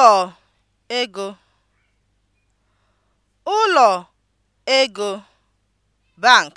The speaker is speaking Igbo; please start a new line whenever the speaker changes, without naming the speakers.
ụlọ ego ụlọ ego (bank)